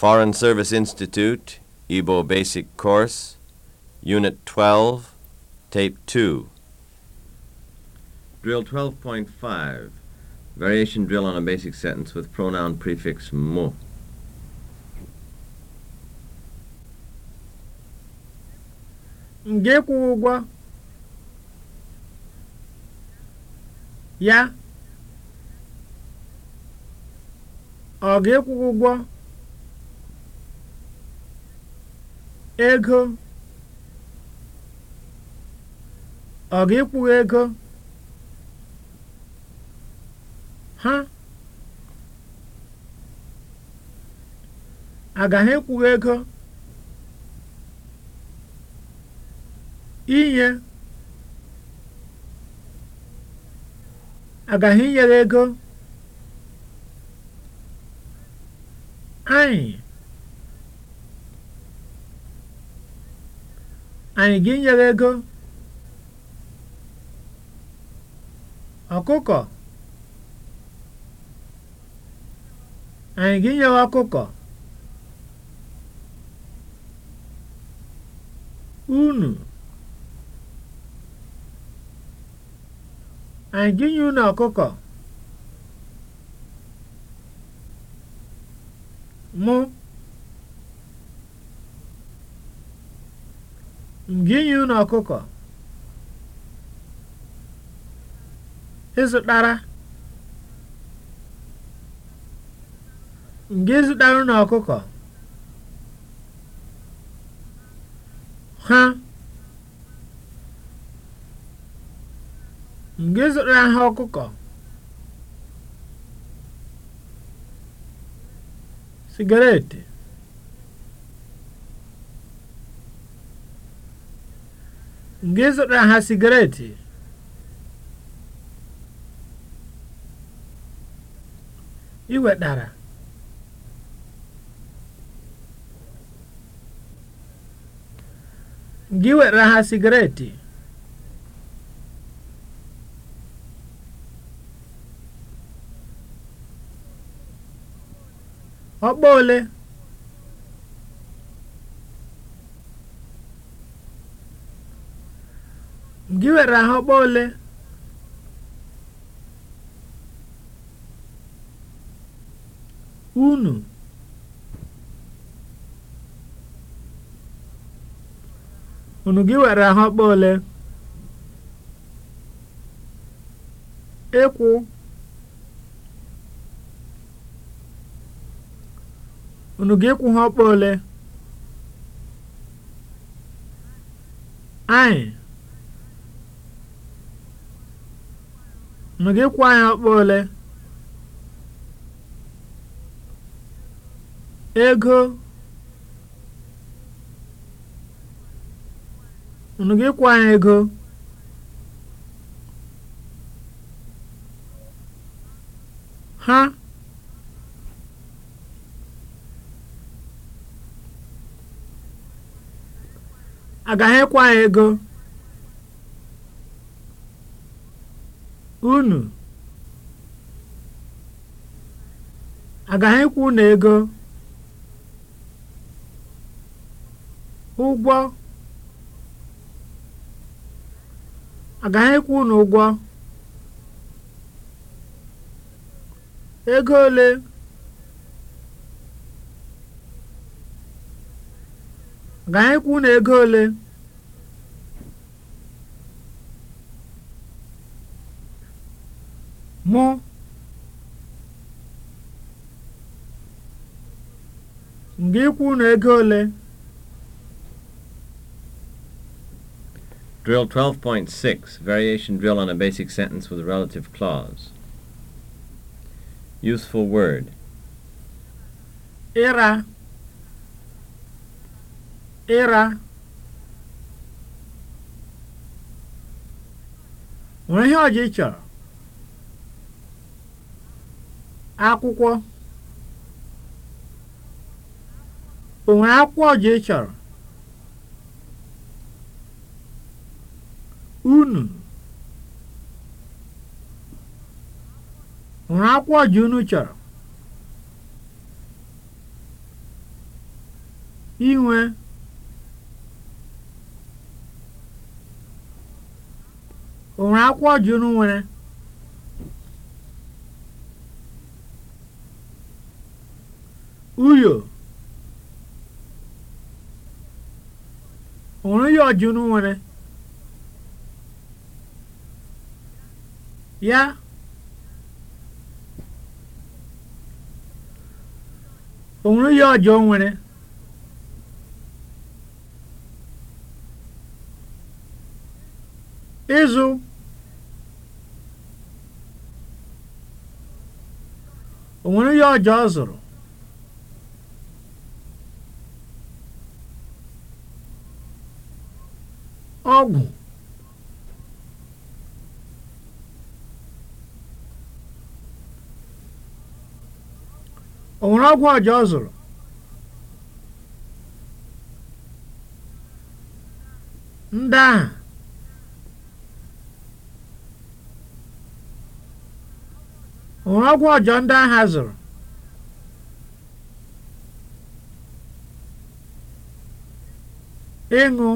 Foreign Service Institute, Igbo Basic Course, Unit 12, Tape 2. Drill 12.5, Variation Drill on a Basic Sentence with Pronoun Prefix mo. ya ọ ga ụgwọ ego ọ ga ịkwụghị ego ha agaghị ịkwụ ego inye agaghị inyere ego anyị anyị ga-enye ego ọkụkọ anyị ga-enye ọkụkọ unu anyị ga-enye unu ọkụkọ mụ m ga-enye unu ọkụkọ ịzụtara m ga-ezụtara unu ọkụkọ ha m ga ha ọkụkọ sigaret Gị zụtara ha sigaret? Ị wetara? ha sigaret? Ọkpa ole? Gị nwere ahụmkpọ ole? Unu? Unu gị nwere ahụmkpọ ole? Ịkwụ? Unu gị ịkwụ ha ọkpa ole? Anyị? ma e gị anyị ọkpa ole ego unu gị kwụọ anyị ego ha agaghị ịkwa e anyị ego unu agaghị ịkwụ na ego ụgwọ agaghị ịkwụ unu ụgwọ ego ole agaghị ịkwụ unu ego ole ga ikwu na ego ole Drill 12.6, variation drill on a basic sentence with a relative clause. Useful word. Era. Era. Nwere ihe ọjị chọrọ? Akwụkwọ. O nwere akwụkwọ ọjị ị chọrọ? Unu. O nwere akwụkwọ ọjị unu chọrọ? Inwe. O nwere akwụkwọ ọjị unu nwere? Uyo. rajulun ya onwere ya ọjọọ nwere ịzụ onwere ya ọjọọ zụrụ ọgwụ ọgwụ ọja zụrụ ndị ahụ ọjọọ ndị ahụ zụrụ ịṅụ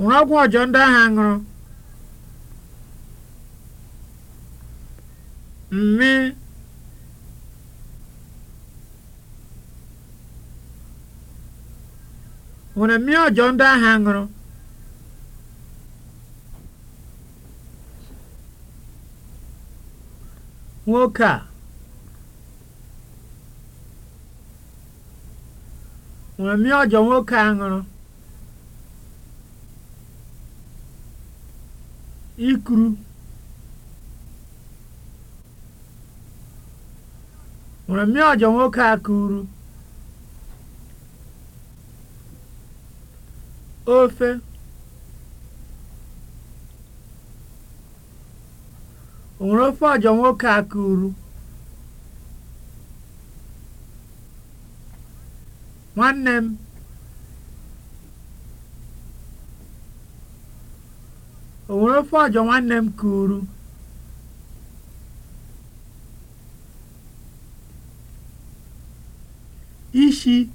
ṅụrụ ọgwụ ọjọọ ndị ahụ ṅụrụ mmi ṅụrụ mmi ọjọọ ndị ahụ ṅụrụ nwoke a ṅụrụ mmi ọjọọ nwoke a ṅụrụ Ikuru nwere mmemme ọjọ nwoke a kụrụ ofe nwere ofe ọjọ nwoke a kụrụ nwanne m o nwere ofe ọjọ nwanne m kụrụ ishi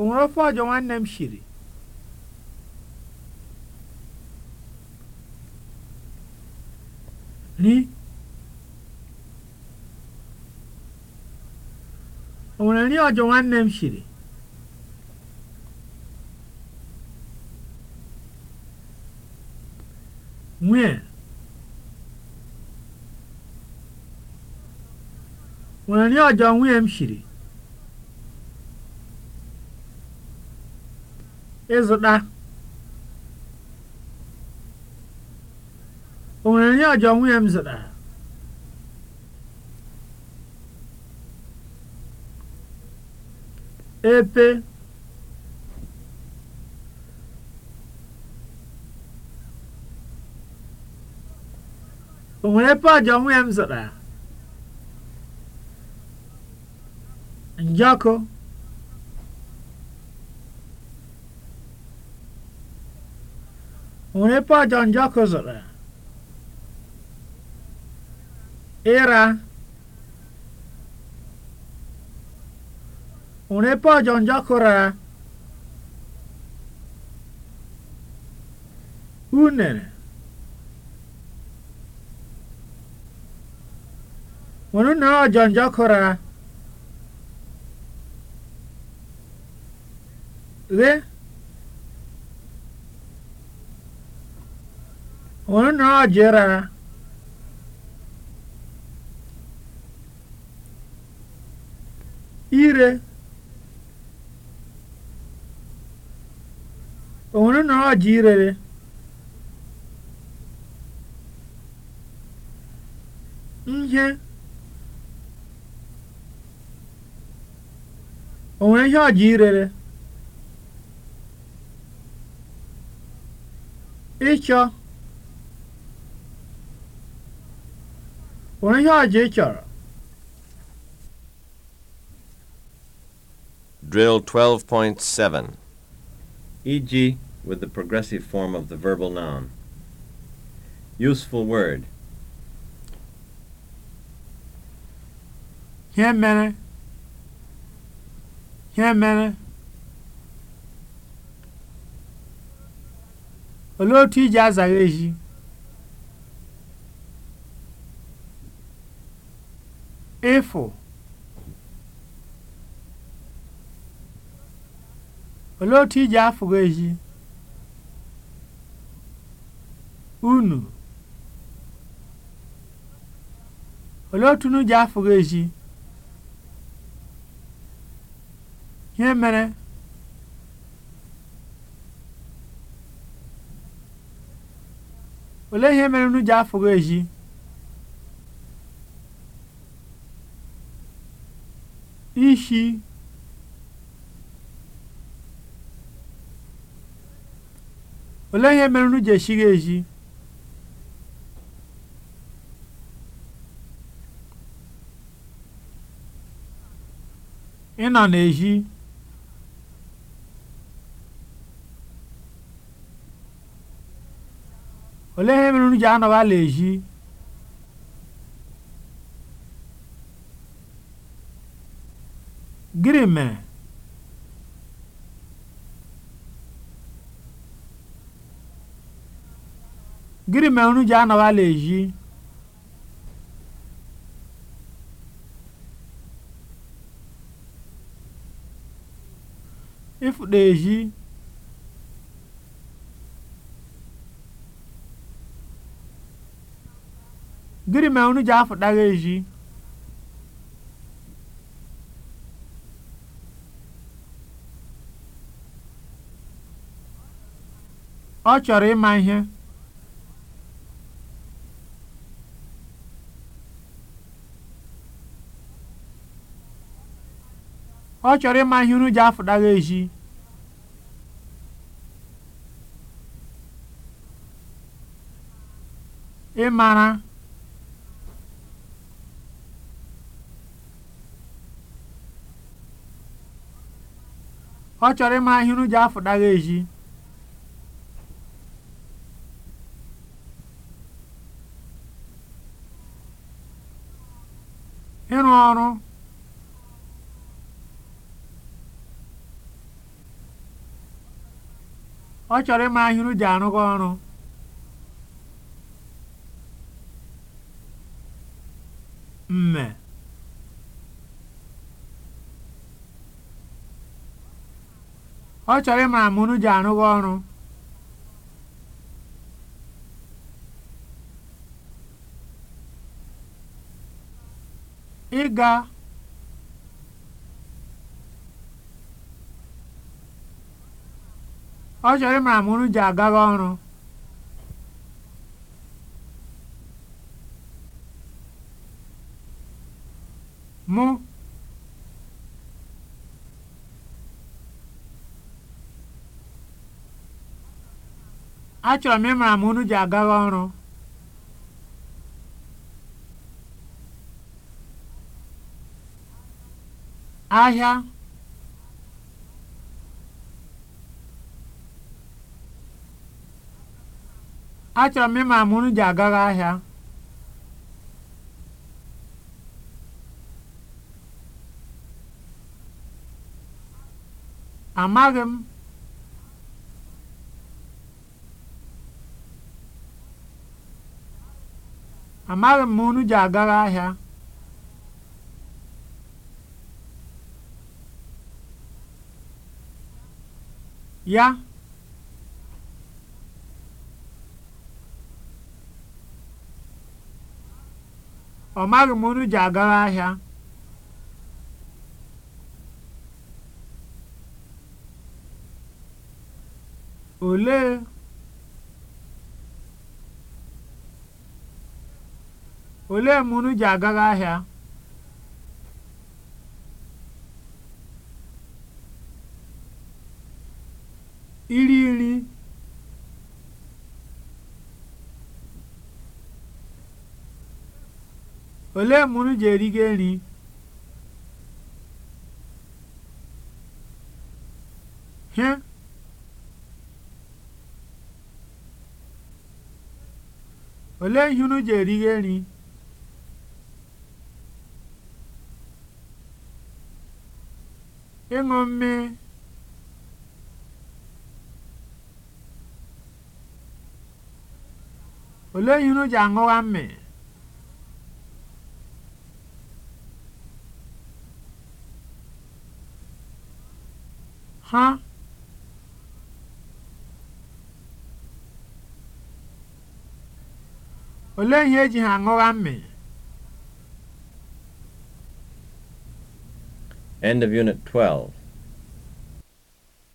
o ọjọ nwanne m shiri ri nri ọjọ nwanne m shiri nwee Nwere nri ọjọọ m ọjọọ nwunye m zụtara epe O nwere ebe ọ onwe ya m zụtara? Njọkụ. O nwere ebe njọkụ zụtara? Ịra. O nwere ebe njọkụ rara? Unere. Onun ha canca kora. Ve onun ire cera. İre. Onun ha cirere. Yeah. onwere ihe ọ ji irere? Ịchọ. onwere ihe ọ ji Drill 12.7 EG with the progressive form of the verbal noun. Useful word. Here, yeah, ihe mere olee otu iji azagha ehi ịfụ olee otu iji afụghị ezi unu olee otu unu ji ihe olee ihe mere nnu ji afụghị eji ishi olee ihe mere nnu ji eji ịnọ na-eji olee ihe mere unu ji anọghị ala ehi gịnị mere gịnị mere ji ala ịfụta gịnị mere unu ji ezi ọ chọrọ ịma ihe ọ chọrọ ịma ihe unu ji afụtara ezi ịmara ọ chọrọ ịma ahịrị ji afụdagha eji ịrụ ọrụ ọ chọrọ ịma ahịrị ji arụga ọrụ mme ọ chọrọ ịmara ma unu ji arụghị ọrụ ịga ọ chọrọ ịmara ma unu ji agaghị ọrụ mụ achọrọ m ịmara ma unu ji agawa ọrụ ahịa achọrọ m ịmara ma unu ji agawa ahịa amaghị m Amaghị m ma unu ji agara ahịa. ya ọ maghị m unu ji agara ahịa olee Olee mgbe unu ji agaghị ahịa? Iri nri Olee mgbe unu ji erigo nri? Hịa Olee ihe unu ji erigo nri? ịṅụ mmii olee ihe unu ji aṅụwa ha olee ihe eji ha aṅụwa mmịị? End of Unit 12.